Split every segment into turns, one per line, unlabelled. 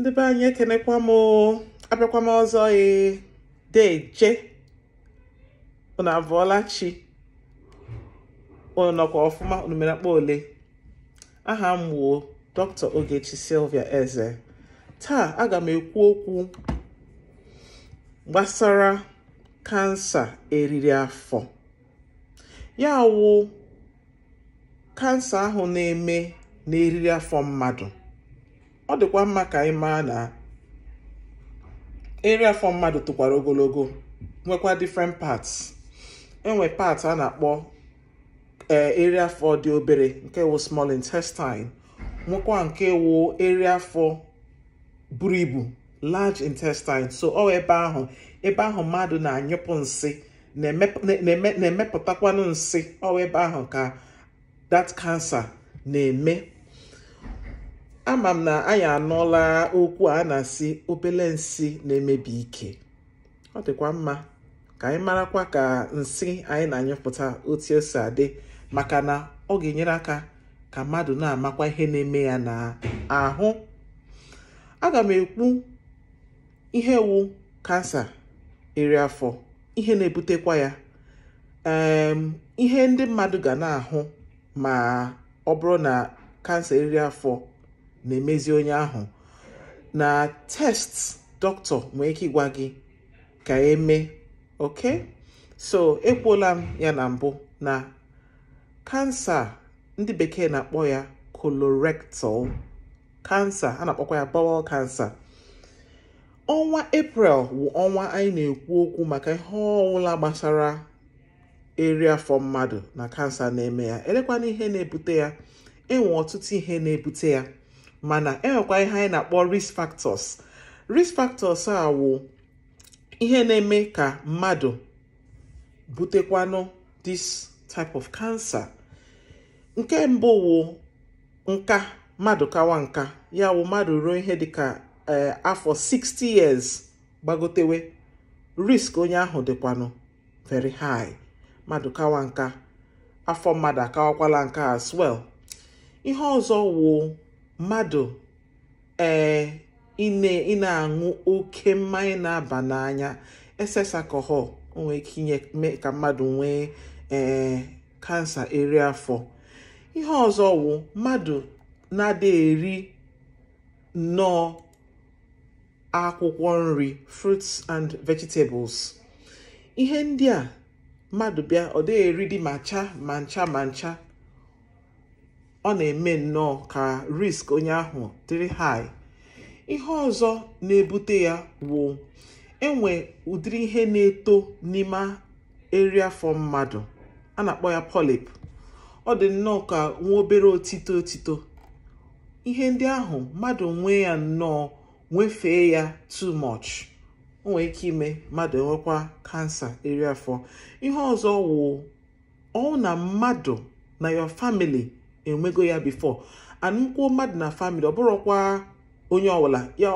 ndị be anyị ekenekwa m abịakwa m ọzọ ee deje unu abụọla chi nọkwa ọfụma unu mere ole aha m gbuo dr ogechi silvia eze taa aga m ekwu okwu gbasara kansa eriri afọ ya wụ kansa ahụ na-eme n'eriri afọ mmadụ ọ dịkwa mma ka anyị maa na eri afọ mmadụ tụkwara ogologo nwekwa different parts enwe part a na-akpọ eri eh, afọ dị obere nke wụ small intestine nwekwa nke wụ eri afọ buru ibu large intestine so ọ ebe ahụ ebe ahụ mmadụ na-anyụpụ nsi na-emepụtakwanụ nsị ọ ebe ahụ ka dat kansa na-eme ama m na anyị anụla okwu a na-asị obele nsị na-emebi ike ọ dịkwa mma ka anyị marakwa ka nsị anyị na-anyụpụta otu esi adị maka na ọ ga-enyere aka ka mmadụ na-amakwa ihe na-eme ya na ahụ. aga m ekwu ihe wu kansa iri afọ ihe na-ebutekwa ya ihe ndị mmadụ ga na-ahụ ma ọ bụrụ na kansa iri afọ na-emezi onye ahụ na test dọkịta nwee ike ịgwa gị ka eme oke so ekwuola m ya na mbụ na kansa ndị bekee na-akpọ ya colorectal kansa a na-akpọkwa ya bowel kansa ọnwa april bụ ọnwa anyị na-ekwu okwu maka ihe ọwụla gbasara eri afọ mmadụ na kansa na-eme ya elekwana ihe na-ebute ya enwe ọtụtụ ihe na-ebute ya mana enwekwa ihe anyị na-akpọ risk factors risk factors a wụ ihe na-eme ka mmadụ butekwanụ this type of cancer nke mbụ wụ nka mmadụ kawa nka ya wụ mmadụ ruo ihe dịka e, afọ 60 years gbagotewe risk onye ahụ dịkwanụ very high mmadụ kawa nka afọ mmadụ akawakwala nka as well ihe ọzọ wụ mmadụ ee ị na-aṅụ oke mmanya na-aba n'anya excess alcohol nwee ike inye mee ka mmadụ nwee ee kansa eri afọ ihe ọzọ wụ mmadụ na-ada eri nnọọ akwụkwọ nri fruits and vegetables ihe ndị a mmadụ bịa ọ dị ma ncha ma ncha ma ncha ọ na-eme nnọọ ka risk onye ahụ dịrị high ihe ọzọ na-ebute ya wụ enwe ụdịrị ihe na-eto n'ime area for mmadụ a na-akpọ ya polyp ọ dị nnọọ ka nwa obere otito otito ihe ndị ahụ mmadụ nwee ya nnọọ nwefee ya too much o ike ime mmadụ enwekwa kansa eri afọ ihe ọzọ wu ọ na mmadụ na your family enwego ya bifo ana mmadụ na famili ọ bụrụkwa onye ọbụla ya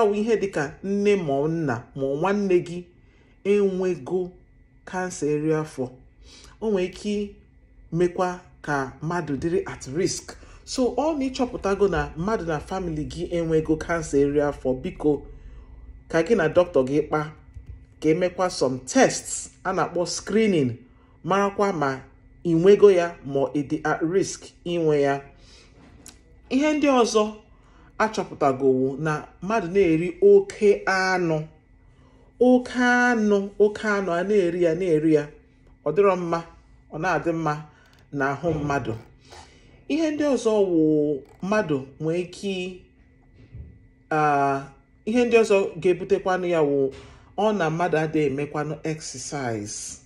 ọwụ ihe dịka nne ma nna ma nwanne gị enwego kansa eri afọ o nwere ike mekwa ka mmadụ dịrị at risk so ọ na ịchọpụtago na mmadụ na famili gị enwego kansa eri afọ biko ka gị na dọkịta gị kpa ka emekwa some tests a na-akpọ screening marakwa ma inwego ya ma ọ dị at risk inwe ya ihe ndị ọzọ achọpụtagowo na mmadụ na-eri oke anụ oke anụ oke anụ a na-eri ya na-eri ya ọ dịrọ mma ọ na-adị mma na ahụ mmadụ ihe ndị ọzọ wụ mmadụ nwee ike ihe ndị ọzọ ga-ebutekwanụ ya wụ ọ na mmadụ adịghị emekwanụ exercise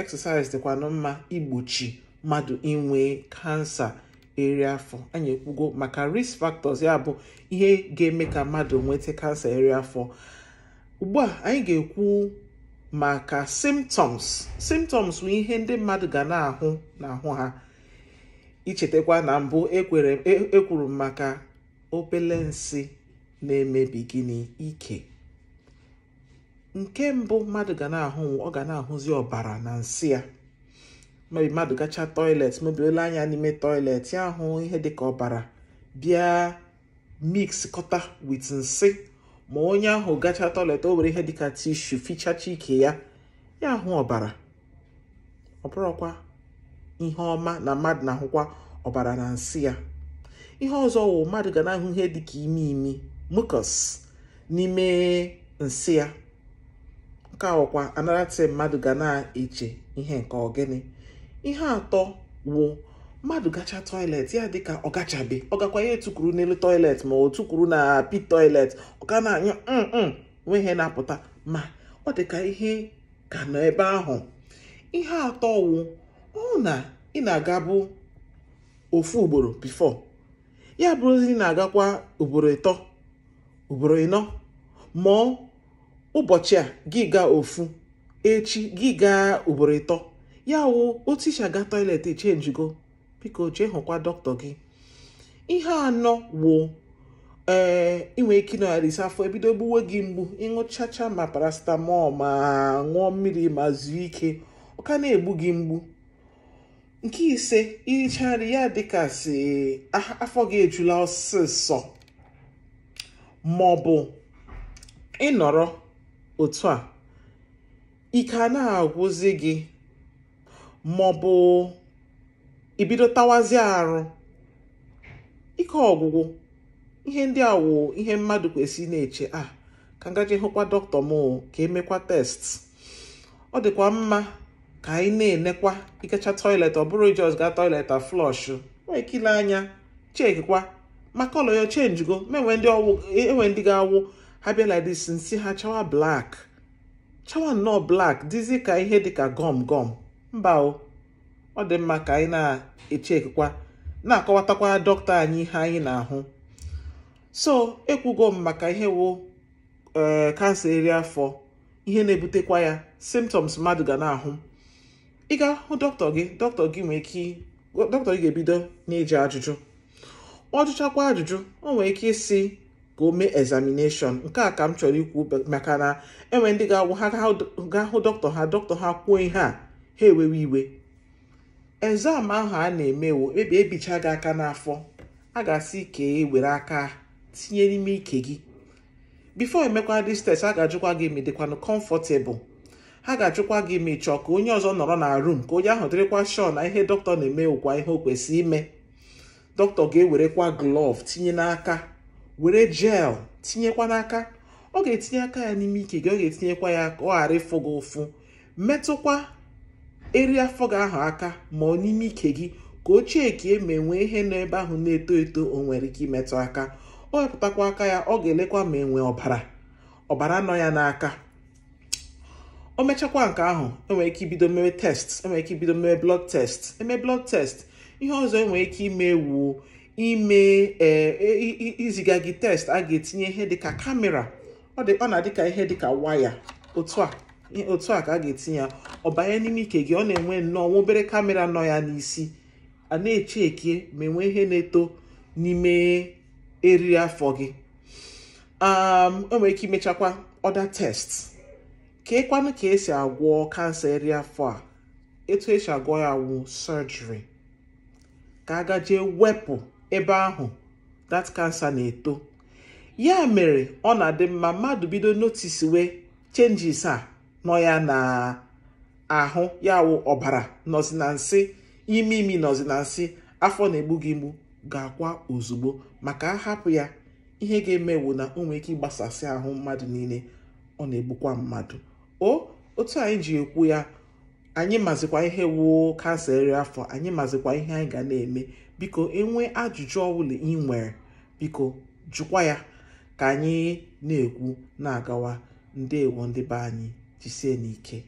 exercise dịkwanụ mma igbochi mmadụ inwe kansa eri afọ anyị ekwugo maka risk factors ya bụ ihe ga-eme ka mmadụ nweta kansa eri afọ ugbu a anyị ga-ekwu maka symptoms symptoms bụ ihe ndị mmadụ ga na-ahụ n'ahụ ha ichetakwa na mbụ ekwuru e, e m maka obele na-emebi gịnị ike nke mbụ mmadụ ga na-ahụ ọ ga na-ahụzi ọbara na nsị ya mebi mmadụ gacha toilet mebi ole anya n'ime toilet ya ahụ ihe dịka ọbara bịa mix kọta wit nsị ma onye ahụ gacha toilet o were ihe dịka tishu fichacha ike ya ya ahụ ọbara ọbụrụkwa ihe ọma na mmadụ na-ahụkwa ọbara na nsị ya ihe ọzọ wụ mmadụ ga na-ahụ ihe dịka imi imi mucus n'ime nsị ya nke ọkwa anarati mmadụ ga na-eche ihe nke ọgịnị ihe atọ wụ mmadụ gacha tọilet ya dịka ọ gachabe ọ gakwa ya n'elu tọilet ma o tukwuru na pi tọilet ọ ga na-anyụ nwee mm, mm, ihe na-apụta ma ọ dịka ihe ka nọ ebe ahụ ihe atọ wụ ọ na ị na-agabụ ofu ugboro bifo ya bụrụzi na-agakwa ugboro ịtọ ugboro ịnọ mụọ ụbọchị a gị gaa ofu echi gị gaa ugboro ịtọ ya wụ otu isi aga toilet echenjigo biko jee hụkwa dọkịta gị ihe anọ wụ eh, ee inwe ike ịnọgharịsị afọ ebido gbuwe gị mgbu ịṅụchacha ma paracetamol ma ṅụọ mmiri ma zuo ike ọ ka na-egbu gị mgbu nke ise irichaa nri ya dịka si afọ gị ejula ọsịsọ maọbụ ịnọrọ otu a ike na agwụzi gị maọbụ ibido tawazie arụ ike ọgwụgwụ ihe ndị a wụ ihe mmadụ kwesịrị na-eche a ah, ka ngaji hụkwa dọkịta m ka emekwa test ọ dịkwa mma ka anyị na-enekwa ikecha toilet ọ bụrụ ijos gaa toilet flọsh wee kile anya chekwa maka ọlọ ya chenjigo e, enwe ndị ga-awụ ha bịa like this nsi ha chawa black chawa nnọọ black dịzi ka ihe dịka gọm gọm mba ọ dị mma ka anyị na-echekwa na-akọwatakwa dọkịta anyị ihe anyị na-ahụ so ekwugo m maka ihe wụ kansa eh, eri afọ ihe na-ebutekwa ya symptoms mmadụ ga na-ahụ ị ga-ahụ dọkịta gị dọkịta gị nwee ike dọkịta gị ga-ebido na-eji ajụjụ ọ jụchakwa ajụjụ o nwee ike ịsị ka o mee examination nke a ka m chọrọ ikwu maka na enwe ndị ga-awụ ha ga hụ dọkịta ha dọkịta ha kwuo ihe a ha ewewe iwe exam ahụ a na-emewo ebe ebicha gị aka n'afọ a ga-asị ike e were aka tinye n'ime ike gị bifo emekwa dis test a ga-ajụkwa gị ma dịkwanụ comfortable ha ga-achụkwa gị ma ka onye ọzọ nọrọ na rum ka onye ahụ dịrịkwa shọ na ihe dọkịta na-eme ụkwa ihe o kwesị ime dọkịta ga-ewerekwa glọv tinye n'aka were jel tinyekwa n'aka ọ ga-etinye aka ya n'ime ike gị ọ ga-etinyekwa ya ka ọ ghara ịfụ gị ụfụ metụkwa eri afọ gị ahụ aka ma ọ n'ime ike gị ka ochie ka eme e nwee ihe nọ ebe ahụ na-eto eto o nwere ike imetụ aka ọ wepụtakwa aka ya ọ ga-elekwa ma enwe ọbara ọbara nọ ya n'aka o mechakwa nke ahụ enwere ike ibido mere test enwere ike ibido mere blood test eme blood test ihe ọzọ enwere ike ime wuo ime e, e, iziga gị test a ga-etinye ihe dịka kamera ọ na ka ihe dịka waya otu a a ka a ga-etinye ya ọ banye n'ime ike gị ọ na-enwe nnọọ nwa obere kamera nọ ya n'isi a na-eche eke ma enwe ihe na-eto n'ime eriri afọ gị um, o nwere ike imechakwa ọda test keekwanụ ka esi agwọ kansa eriri afọ a etu esi agwọ ya wụ surgery ka a gajee wepụ ebe ahụ that kansa na-eto ya mere ọ na-adị mma mmadụ bido notice wee changes a nọ ya na ahụ ya wụ ọbara nọzi na nsị imi imi nọzi na nsị afọ na-egbu gị mgbu ga-akwa ozugbo maka ahapụ ya ihe ga-emewu na o ike ịgbasasị ahụ mmadụ niile ọ na-egbukwa mmadụ otu anyị ji ekwu ya anyị mazikwa ihe wuo kansa eri afọ anyị mazikwa ihe anyị ga na-eme biko enwe ajụjụ ọbụla ị nwere biko jụkwa ya ka anyị na-ekwu na-agawa ndewo ndị be anyị jisie n'ike